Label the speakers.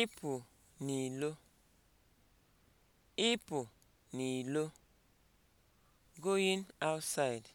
Speaker 1: ịpụ n'ilo ịpụ n'ilo (going outside)